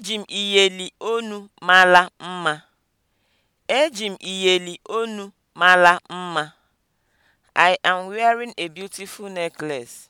Eji m iyeli onu mara mma. Eji m iyeli olu mara mma. I am wearing a beautiful necklace.